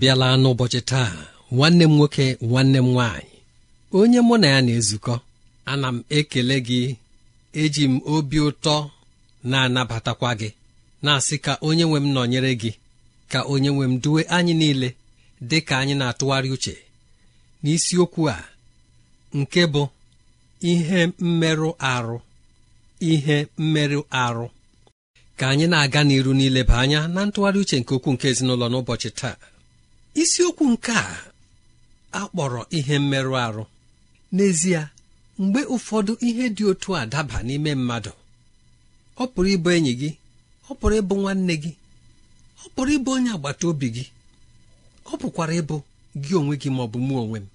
abịala n'ụbọchị taa nwanne m nwoke nwanne m nwaanyị onye mụ na ya na-ezukọ ana m ekele gị eji m obi ụtọ na-anabatakwa gị na-asị ka onye nwe m nọnyere gị ka onye nwe m duwe anyị niile dị ka anyị na-atụgharị uche n'isiokwu a nke bụ ihe mmerụ arụ ihe mmerụ arụ ka anyị na-aga n'iru niile ba anya na ntụgharị uche nke okwu nke ezinụlọ n'ụbọchị taa isiokwu nke a akpọrọ ihe mmerụ ahụ n'ezie mgbe ụfọdụ ihe dị otu a daba n'ime mmadụ ọ pụrụ ịbụ enyi gị ọ pụrụ ịbụ nwanne gị ọ pụrụ ịbụ onye agbata obi gị ọ pụkwara ịbụ gị onwe gị ma ọ bụ mụ onwe m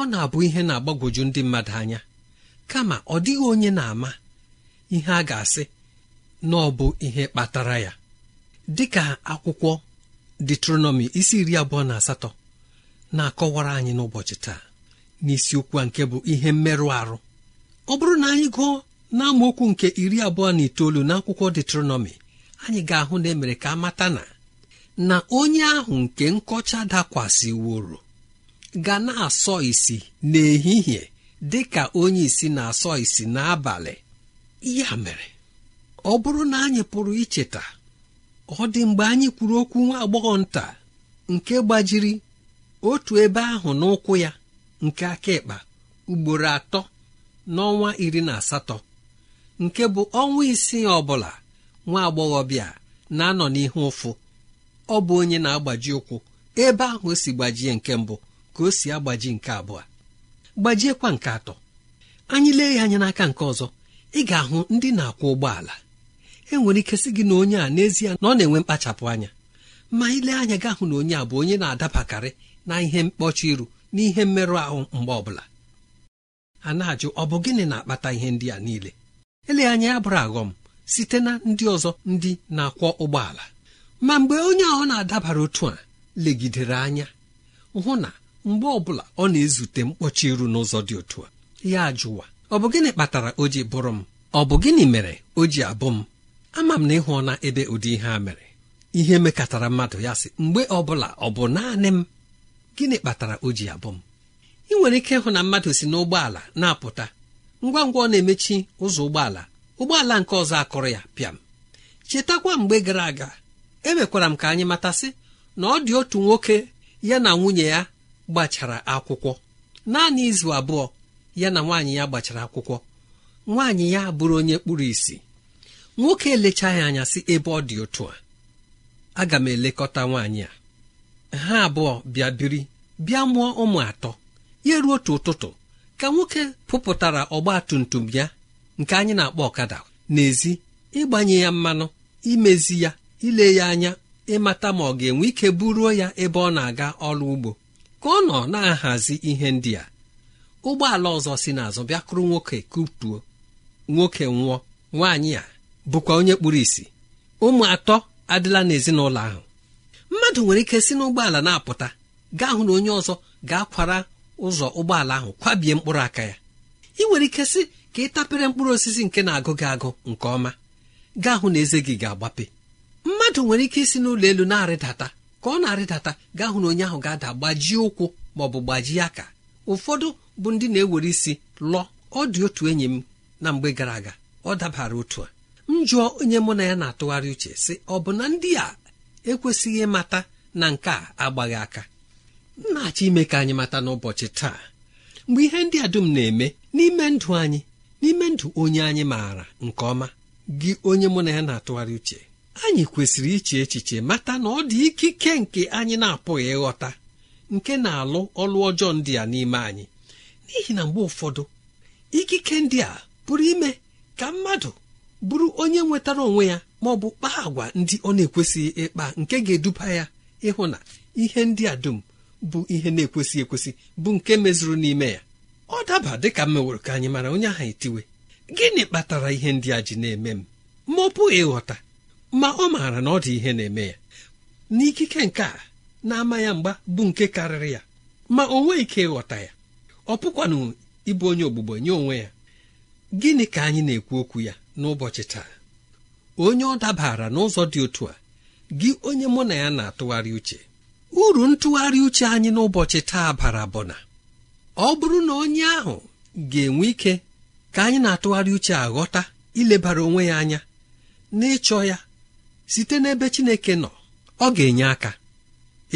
ọ na-abụ ihe na-agbagwoju ndị mmadụ anya kama ọ dịghị onye na-ama ihe a ga-asị na ọ bụ ihe kpatara ya dịka akwụkwọ detronọmi isi iri abụọ na asatọ na-akọwara anyị n'ụbọchị taa n'isiokwu a nke bụ ihe mmerụ arụ ọ bụrụ na anyị gụọ n'amaokwu nke iri abụọ na itoolu n'akwụkwọ detronọmi anyị ga-ahụ na emere ka a mata na na onye ahụ nke nkọcha dakwasịworo ga na-asọ isi n'ehihie dị ka onye isi na-asọ isi n'abalị ya mere ọ bụrụ na anyị pụrụ icheta ọ dị mgbe anyị kwuru okwu nwa agbọghọ nta nke gbajiri otu ebe ahụ n'ụkwụ ya nke aka ịkpa ugboro atọ n'ọnwa iri na asatọ nke bụ ọnwa isii ọbụla bụla nwa bịa na-anọ n'ihu ụfụ ọ bụ onye na-agbaji ụkwụ ebe ahụ o si gbajie nke mbụ ka o si agbaji nke abụọ gbajiekwa nke atọ anyị lee ya anya n'aka nke ọzọ ị ga-ahụ ndị na-akwọ ụgbọala enwere ike sị gị na onye a n'ezie na ọ na-enwe mkpachapụ anya ma ile anya gị ahụ na onye a bụ onye na-adabakarị na ihe mkpọchi iru na ihe mmerụ ahụ mgbe ọbụla a na-ajụ ọ bụ gịnị na-akpata ihe ndị a niile ele anya ya bụrụ aghọm site na ndị ọzọ ndị na-akwọ ụgbọala ma mgbe onye ahụ na-adabara otu a legidere anya hụ na mgbe ọbụla ọ na-ezute mkpọchi iru n'ụzọ dị otu a ya jụwa ọ bụ gịnị kpatara o ji bụrụ m ọ bụ gịnị mere o ji abụ m ama m na ịhụ na ebe ụdị ihe a mere ihe mekatara mmadụ ya sị mgbe ọbụla ọ bụ naanị m gịnị kpatara o ji abụ m ị nwere ike ịhụ na mmadụ si n'ụgbọala na-apụta ngwa ngwa ọ na-emechi ụzọ ụgbọala ụgbọala nke ọzọ akụrụ ya pịam chetakwa mgbe gara aga emekwara m ka anyị matasị na ọ dị otu nwoke ya na nwunye ya gbachara akwụkwọ naanị izu abụọ ya na nwaanyị ya gbachara akwụkwọ nwaanyị ya bụrụ onye kpụrụ isi nwoke elechaghị anya si ebe ọ dị otu a aga m elekọta nwaanyị a ha abụọ bịa biri bịa mụọ ụmụ atọ ya ruo otu ụtụtụ ka nwoke pụpụtara ọgba tum tum ya nke anyị na-akpọ ọkada n'ezi ịgbanye ya mmanụ imezi ya ile ya anya ịmata ma ọ ga-enwe ike buruo ya ebe ọ na-aga ọrụ ugbo ka ọ nọ na-ahazi ihe ndị a ụgbọala ọzọ si n'azụ bịakụrụ nwoke kutuo nwoke nwụọ nwaanyị a bụkwa onye kpuru ìsì ụmụ atọ adịla n'ezinụlọ ahụ mmadụ nwere ike si n'ụgbọala na-apụta gaa hụ na onye ọzọ ga-akwara ụzọ ụgbọala ahụ kwabie mkpụrụ aka ya ị nwere ike si ka ị tapere mkpụrụ osisi nke na-agụ gị agụ nke ọma gaa hụ na eze gị ga-agbape mmadụ nwere ike isi n'ụlọ elu na-arịdata ka ọ na-arịdata gaa hụ na onye ahụ ga-ada gbajie ụkwụ ma ọ bụ gbajie aka ụfọdụ bụ ndị na-ewere isi lụọ ọ dị otu enyi m na mgbe gara aga ọ dabara otu a m onye mụ na ya na-atụgharị uche sị ọ bụ na ndị a ekwesịghị ịmata na nke a agbaghị aka m na-achọ ime ka anyị mata n'ụbọchị taa mgbe ihe ndị a dum na-eme n'ime ndụ anyị n'ime ndụ onye anyị maara nke ọma gị onye mụ na ya na-atụgharị uche anyị kwesịrị iche echiche mata na ọ dị ikike nke anyị na-apụghị ịghọta nke na-alụ ọlụ ọjọọ ndị a n'ime anyị n'ihi na mgbe ụfọdụ ikike ndị a pụrụ ime ka mmadụ bụrụ onye nwetara onwe ya ma ọ bụ kpaa agwa ndị ọ na-ekwesịghị ịkpa nke ga-eduba ya ịhụ na ihe ndị a dum bụ ihe na-ekwesịghị ekwesị bụ nke mezuru n'ime ya ọ daba dịka m ka anyị mara onye ahụ etiwe gịnị kpatara ihe ndị a ji na-eme m ma ọ pụghị ịghọta ma ọ maara na ọ dị ihe na-eme ya n'ikike nke a na-ama ya mgba bụ nke karịrị ya ma o nweghị ike ịghọta ya ọ pụkwanụ ịbụ onye ogbugbo nye onwe ya gịnị ka anyị na-ekwu okwu ya n'ụbọchị taa onye ọ dabara n'ụzọ dị otu a gị onye mụ na ya na-atụgharị uche uru ntụgharị uche anyị n'ụbọchị taa bara bụ na ọ bụrụ na onye ahụ ga-enwe ike ka anyị na-atụgharị uche aghọta ilebara onwe ya anya n'ịchọ ya site n'ebe Chineke nọ ọ ga-enye aka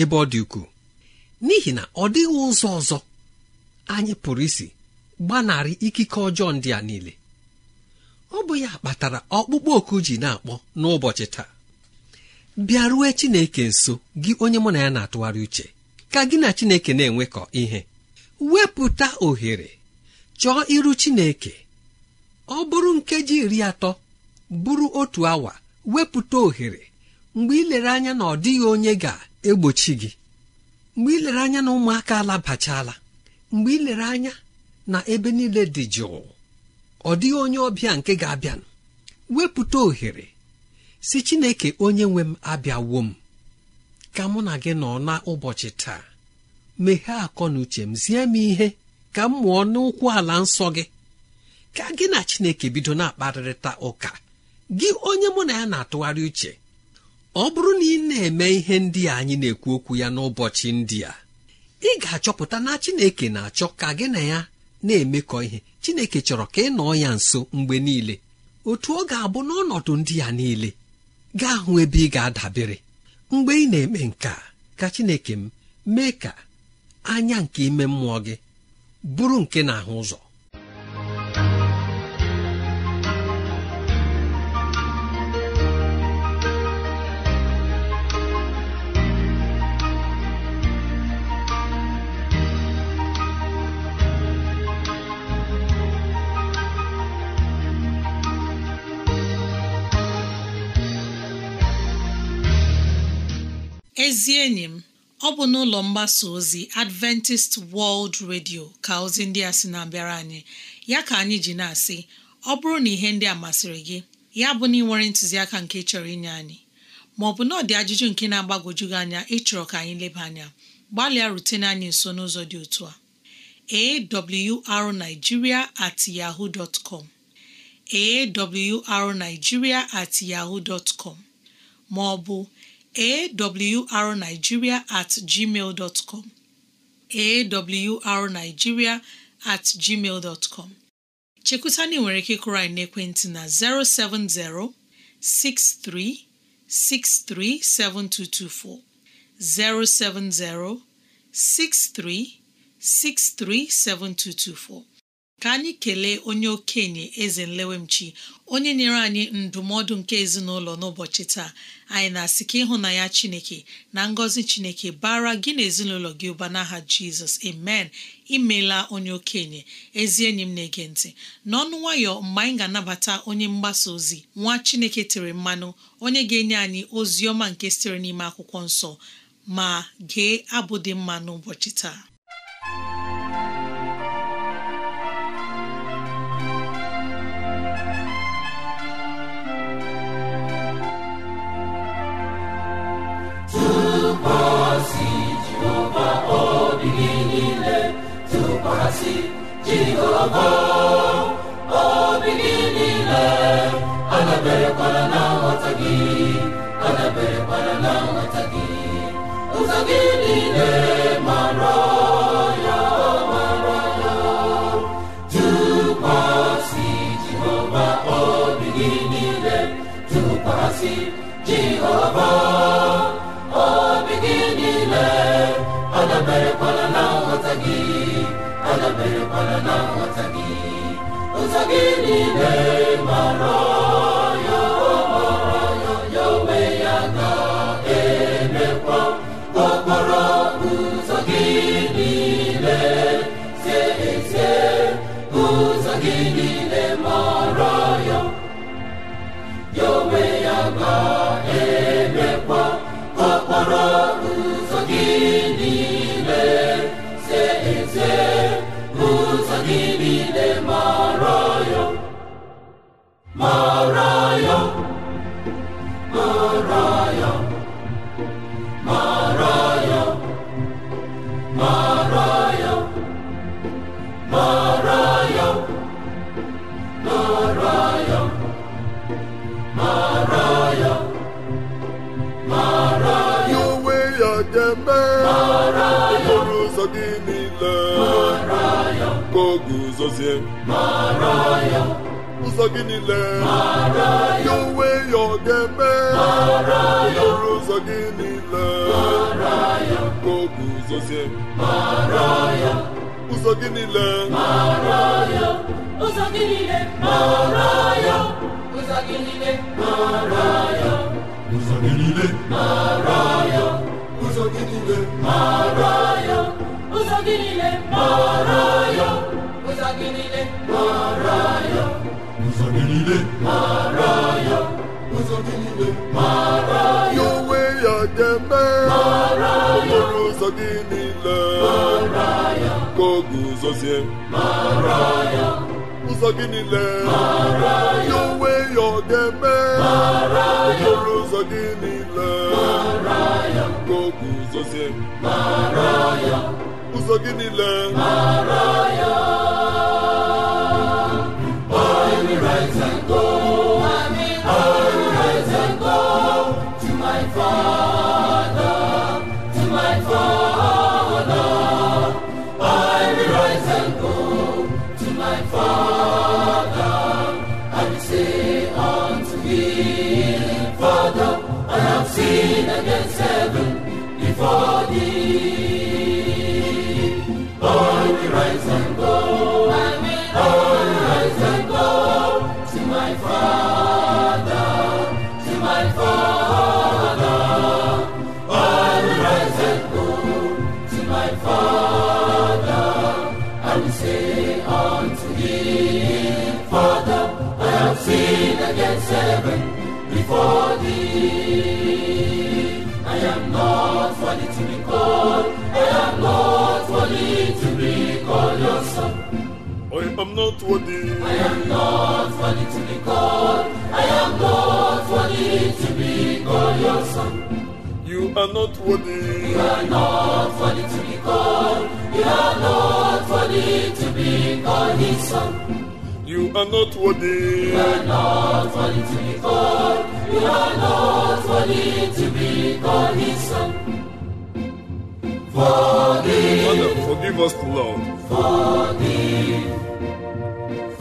ebe ọ dị ukwuu n'ihi na ọ dịghị ụzọ ọzọ anyị pụrụ isi gbanarị ikike ọjọọ ndị a niile ọ bụ ya kpatara ọkpụkpọ oku ji na-akpọ n'ụbọchị taa Bịaruo Chineke nso gị onye mụ na ya na-atụgharị uche ka gị na Chineke na-enwekọ ihe wepụta ohere chọọ iru Chineke ọ bụrụ nkeji iri atọ bụrụ otu awa wepụta ohere mgbe ị lere anya na ọ dịghị onye ga-egbochi gị mgbe ị lere anya na ụmụaka alabachala mgbe ị lere anya na ebe niile dị jụụ ọ dịghị onye ọbịa nke ga-abịa wepụta ohere si Chineke onye nwe m abịawo m ka mụ na gị nọ n'ụbọchị taa meghee akọ na uche m zie m ihe ka m mụọ n'ụkwụ ala nsọ gị ka gị na Chineke bido na-akparịta ụka gị onye mụ na ya na-atụgharị uche ọ bụrụ na ị na-eme ihe ndị a anyị na-ekwu okwu ya n'ụbọchị ndị a ị ga-achọpụta na Chineke na-achọ ka gị na ya na-emekọ ihe chineke chọrọ ka ị nọọ ya nso mgbe niile otu ọ ga-abụ n'ọnọdụ ndị ya niile gaa hụ ebe ị ga-adabere mgbe ị na-eme nka ka chineke m mee ka anya nke ime mmụọ gị bụrụ nke na-ahụ ụzọ ezi enyi m ọ bụ n'ụlọ mgbasa ozi Adventist World Radio ka ozi ndị a sị na-abịara anyị ya ka anyị ji na-asị ọ bụrụ na ihe ndị a masịrị gị ya bụ na ị nwere ntụziaka nke chọrọ inye anyị ma ọ bụ na ọ dị ajụjụ nke na-agbagwoju gị anya ịchọrọ ka anyị leba anya gbalịa rutene anyị nso n'ụzọ dị otu a awrnigeria at yahoo dot com awrnigeria at yahoo dot com ma ọ bụ awrnigeria at gmail dot com awrnigeria at gmail dot com chekwutana nwere ike ịkụrụ anyị n'ekwentị na 070 6363 7224 070 6363 7224 ka anyị kelee onye okenye eze nlewemchi onye nyere anyị ndụmọdụ nke ezinụlọ n'ụbọchị taa anyị na-asị ka ịhụnanya chineke na ngọzi chineke bara gị na ezinụlọ gị ụba n'aha jizọs amen imela onye okenye ezi enyi m na-ege ntị n'ọnụ nwayọ mgbe anyị ga-anabata onye mgbasa ozi nwa chineke tere mmanụ onye ga-enye anyị ozi ọma nke sitere n'ime akwụkwọ nsọ ma gee abụ dị mma n'ụbọchị taa jehova obi gị niile adaberekwala na nghọta gị adaberekwala na nghọta gị ụzọ gị niile mara ya mara ya tụkwasị jehova obi gị niile tụkwasị jehova nsọ gị sozie ụzọ gị niile ya onwe ya ọ ga-eme okporo ụzọ gị niile ka ụzọ gị ụzọ gị niile ụzọ gị niile ụzọ gị niile ụzọ gị niile ụzọ gị niile ụzọ gị niile mara ya ụzọ gị niile mara ya ụzọ gị niile mara ya onwe ya ga-eme ya okporo ụzọ gị niile mara ya ka oge ụzọzie mara ya ụzọ gị niile mara ya onwe ya ọ ga ya okporo gị niile mara ya ka oge ụzọzie mara ya ụzọ gị niile mara ya not worthy. I am not worthy to be called. I am not worthy to be called your son. You are not worthy. You are not worthy to be called. You are not worthy to be called his son. You are not worthy. You are not worthy to be called. You are not worthy to be called His son. Forgive. Father, forgive us, Lord. Forgive.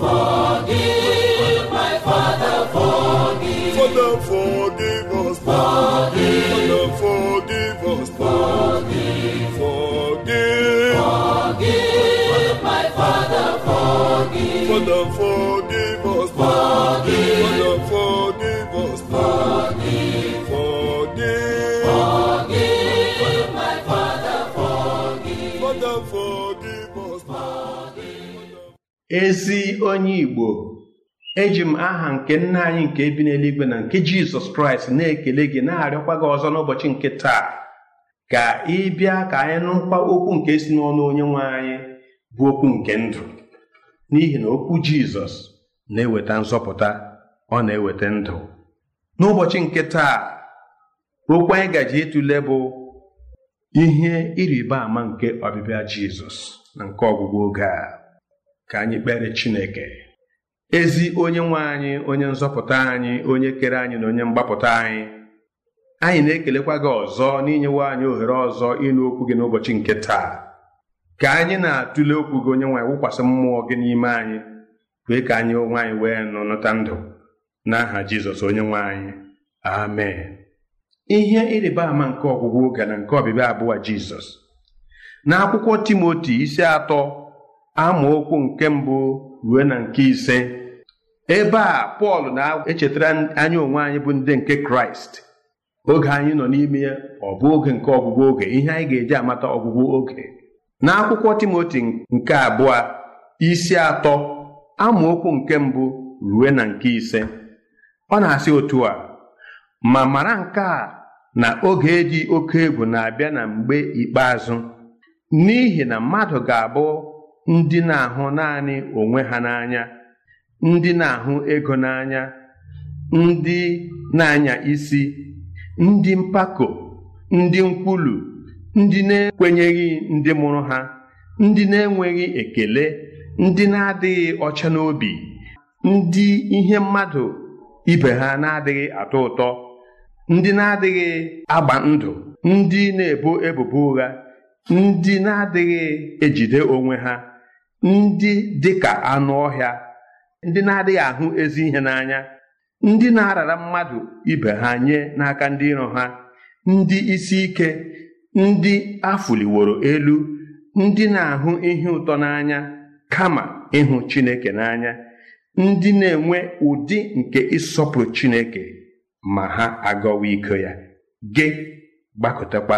Forgive my Father, forgive. Father, forgive us. Forgive. my Father, forgive. Father, forgive. ezi onye Igbo eji m aha nke nna anyị nke ebi n'eluigwe na nke Jizọs Kraịst na-ekele gị na-arịọkwa gị ọzọ n'ụbọchị nke taa ka ị bịa ka anyị nụkwa okwu nke si n'ọnụ onye nwe anyị bụ okwu nke ndụ n'ihi na okwu Jizọs na-eweta nzọpụta ọ na-eweta ndụ n'ụbọchị nke taa okwu anyị gaji ịtụle bụ ihe ịrịba ama nke ọbịbịa Jizọs na nke ọgwụgwụ oge a ka anyị kpere Chineke ezi onye nwe anyị onye nzọpụta anyị onye kere anyị na onye mgbapụta anyị anyị na-ekelekwa gị ọzọ n'inyewe anyị ohere ọzọ ịnụ okwu gị n'ụbọchị nke taa ka anyị na-atụle okwu gị onye nwe anyị wụkwasị mmụọ gị n'ime anyị wee ka anyị onwe anyị wee nụ nụta ndụ n'aha Jizọs onye nwe anyị amen ihe ịrịba ama nke ọgwụgwụ oge na nke ọbịbịa abụọ Jizọs n'akwụkwọ Timoti isi atọ amaokwu nke mbụ ruo na nke ise ebe a Pọl na-echetara anyị onwe anyị bụ ndị nke Kraịst oge anyị nọ n'ime ya ọ bụ oge nke ọgwụgwụ oge ihe anyị ga-eji amata ọgwụgwụ oge n'akwụkwọ Timoti nke abụọ isi atọ amaokwu nke mbụ ruo na nke ise ọ na-asị otu a ma mara nke a na oge dị oke egwu na-abịa na mgbe ikpeazụ n'ihi na mmadụ ga-abụ ndị na-ahụ naanị onwe ha n'anya ndị na-ahụ ego n'anya ndị na-anya isi ndị mpako ndị nkwulu ndị na-ekwenyeghị ndị mụrụ ha ndị na-enweghị ekele ndị na-adịghị ọcha n'obi ndị ihe mmadụ ibe ha na-adịghị atọ ụtọ ndị na-adịghị agba ndụ ndị na-ebo ebubo ụgha ndị na-adịghị ejide onwe ha ndị dị ka anụ ọhịa ndị na-adịghị ahụ ezi ihe n'anya ndị na-arara mmadụ ibe ha nye n'aka ndị iro ha ndị isi ike ndị afụliworo elu ndị na-ahụ ihe ụtọ n'anya kama ịhụ Chineke n'anya ndị na-enwe ụdị nke ịsọpụrụ Chineke ma ha agọwa iko ya gị gbakọtakwa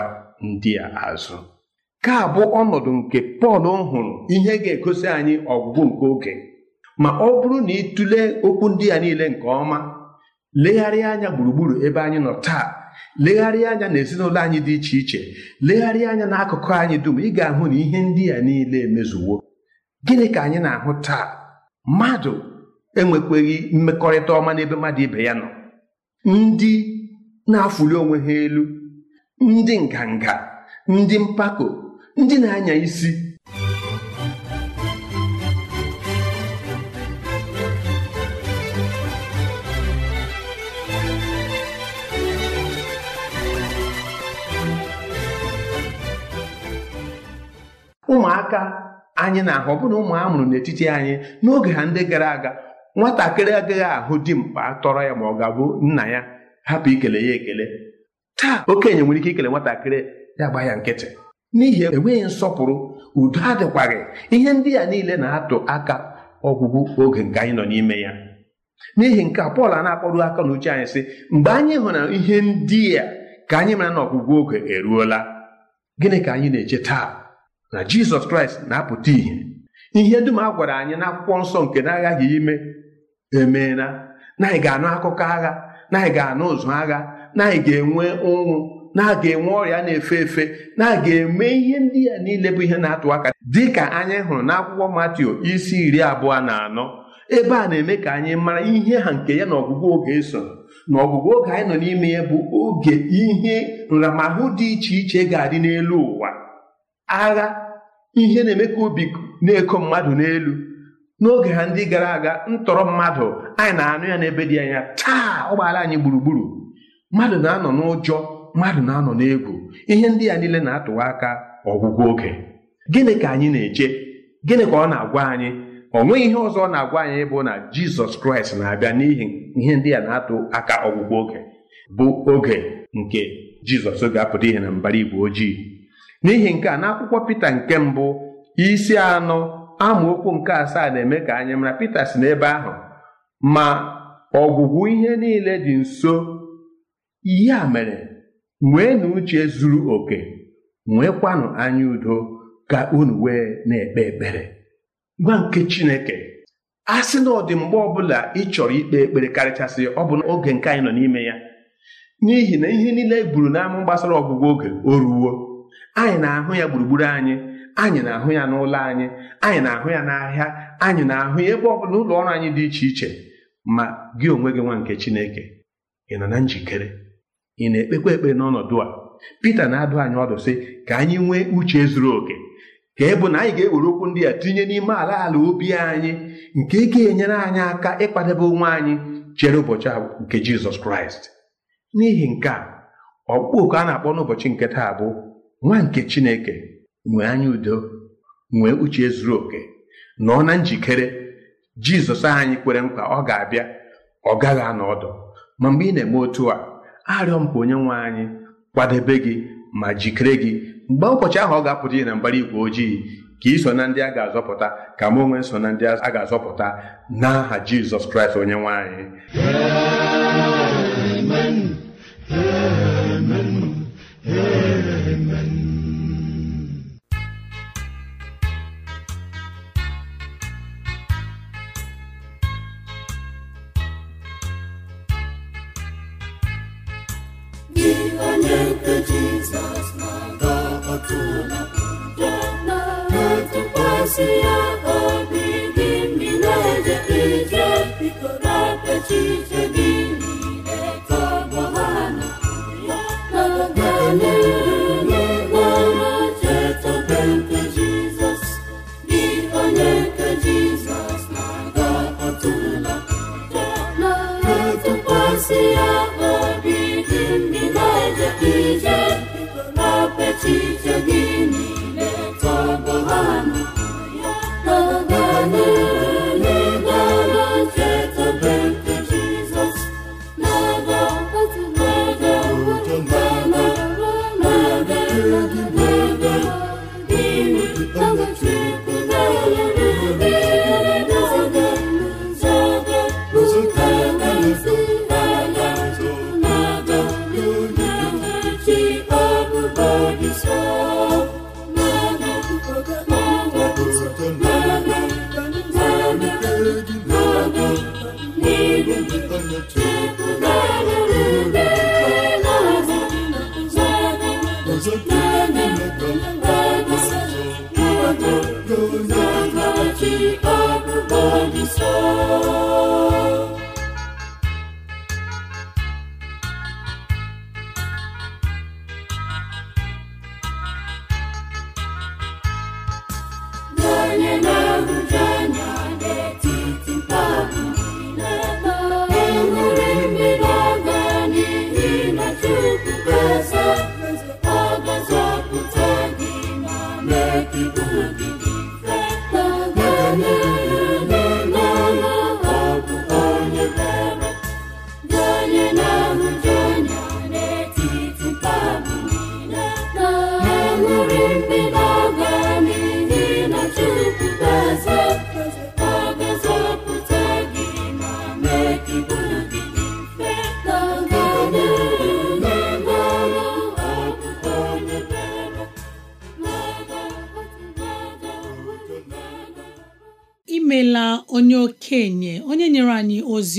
ndị a azụ ka bụ ọnọdụ nke pọl hụrụ ihe ga-egosi anyị ọgwụgwụ nke oge ma ọ bụrụ na ịtụle okwu ndị ya niile nke ọma legharịa anya gburugburu ebe anyị nọ taa legharịa anya na ezinụlọ anyị dị iche iche legharịa anya n'akụkụ anyị dum ị ga-ahụ na ihe ndị a niile emezuwo gịnị ka anyị na-ahụ taa mmadụ enwekweghị mmekọrịta ọma n'ebe mmadụ ibe ya nọ ndị na-afụli onwe ha elu ndị nganga ndị mpako ndị na-anya isi ụmụaka anyị na-ahụ ọbụna ụmụ a mụrụ n'etiti anyị n'oge ha ndị gara aga nwatakịrị agaghị ahụ dimkpa tọrọ ya ma ọ ga-abụ nna ya hapụ ikele ya ekele taa okenye nwere ike ikele nwatakịrị ya gba ya nkịtị n'ihi enweghị nsọpụrụ udo adịkwaghị ihe ndị a niile na-atụ aka ọgwụgwụ oge nke anyị nọ n'ime ya n'ihi nke a Pọl a na akpọrọ aka n'uche anyị sị mgbe anyị hụrụ ihe ndị a ka anyị mara na ọgwụgwụ oge eruola gịnị ka anyị na-eche taa na Jizọs Kraịst na-apụta ìhè ihe dum a gwara anyị na nsọ nke na-aghaghị ime emeela na anyị ga-anụ akụkọ agha na anyị ga-anụ ụzụ agha na anyị ga-enwe ụnwụ na-aga enwe ọrịa na-efe efe na-aga eme ihe ndị ya niile bụ ihe na-atụ aka dị ka anyị hụrụ n'akwụkwọ Matiu isi iri abụọ na anọ ebe a na-eme ka anyị mara ihe ha nke ya na ọgwụgwụ oge so na ọgwụgwụ oge anyị nọ n'ime ya bụ oge ihe nramahụ dị iche iche ga-adị n'elu ụwa agha ihe na-eme ka obi na-eko mmadụ n'elu n'oge ha ndị gara aga ntọrọ mmadụ anyị na-anụ ya n'ebe dị anya taa ụgbọala anyị gburugburu mmadụ na-anọ n'ụjọ mmadụ na-anọ n'egwu ihe ndị a niile na-atụwa aka ọgwụgwụ oge gịnị ka anyị na-eche gịnị ka ọ na-agwa anyị ọ nweghị ihe ọzọ ọ na-agwa anyị bụ na jizọs kraịst na-abịa n'ihi ihe ndị a na-atụ aka ọgwụgwụ oge bụ oge nke jizọs ga-apụta ihe na mbara igwe ojii n'ihi nke a n'akwụkwọ pita nke mbụ isi anọ amaokwu nke asaa na-eme ka anyị mara pita si n'ebe ahụ ma ọgwụgwụ ihe niile dị nso ihe a mere nweenụ uche zuru oke nweekwanụ anya udo ka unu wee na-ekpe ekpere gwa nke Chineke a sị na ọ dị ọbụla ị chọrọ ikpe ekpere karịchasị ọ bụ oge nke anyị nọ n'ime ya n'ihi na ihe niile eburu n'ama gbasara ọgwụgwọ oge o ruwo anyị na-ahụ ya gburugburu anyị anyị na-ahụ ya n'ụlọ anyị anyị na-ahụ ya n'ahịa anyị na-ahụ ya ebe ọ bụla ụlọ ọrụ anyị dị iche iche ma gị onwe gị nwa nke Chineke ị nọ na njikere ị na-ekpekwa ekpe n'ọnọdụ a Pita na-adụ anyị ọdụ sị ka anyị nwee uche zuru oke ka e bụ na anyị ga-ewere okwu ndị a tinye n'ime ala ala obi anyị nke ga-enyere anyị aka ịkwadebe onwe anyị chere ụbọchị nke Jizọs Kraịst n'ihi nke a ọkpụkpọ oku a na-akpọ n'ụbọchị nke taa bụ nwa nke Chineke nwee anya udo nwee uche zuru oke nọ na njikere Jizọs anyị kwere nkwa ọ ga-abịa ọ gaghị anọ ọdụ ma mgbe ị na-eme otu a arịọ m ka onye nwe anyị kwadebe gị ma jikere gị mgbe ụbọchị ahụ ọ ga-apụta ihe na mbara igwe ojii ka iso na ndị a ga-azọpụta ka m onwe so na ndị a ga-azọpụta n'aha Jizọs Kraịst onye nwe otu onye ya na-atụkwasị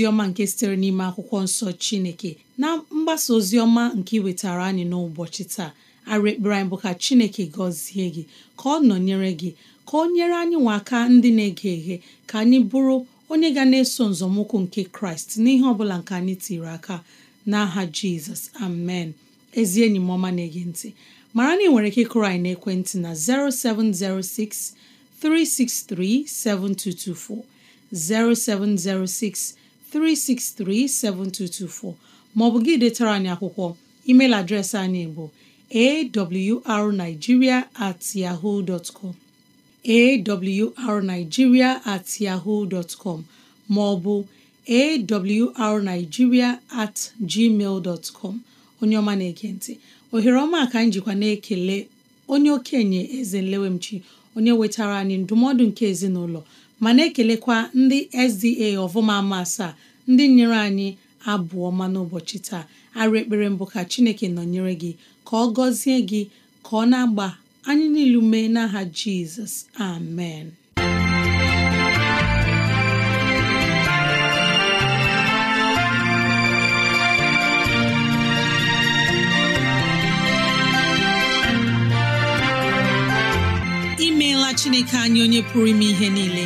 ọma nke sitere n'ime akwụkwọ nsọ Chineke na mgbasa ozi ọma nke iwetara anyị n'ụbọchị taa arị ekpere anyị bụ ka Chineke gọzie gị ka ọ nọnyere gị ka ọ nyere anyị nwa aka ndị na-ege eghe ka anyị bụrụ onye ga na-eso nzọmụkwụ nke Kraịst n'ihe ọ bụla nke anyị tiri aka n'aha Jizọs amen ezi enyi m ọma na-ege ntị mara na ị nwere ike kụrụ anyị n'ekwentị na 0706 363 7224 0706 3637224 maọbụ gị detara anyị akwụkwọ email adreesị anyị bụ awrnigeria at yahoo dot com awrnigeria at yahoo dot com maọbụ awrnigeria at gmail dot com onye ọma na-ege ntị ohere ọma ka anyị jikwa na-ekele onye okenye eze nlewemchi onye wetara anyị ndụmọdụ nke ezinụlọ mana na-ekelekwa ndị SDA ọvụma ama asaa ndị nyere anyị abụọ ma n'ụbọchị taa arụ ekpere mbụ ka Chineke nọnyere gị ka ọ gọzie gị ka ọ na-agba anyị niilu mee n'aha Jizọs amen imeela Chineke anyị onye pụrụ ime ihe niile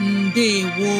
ndewo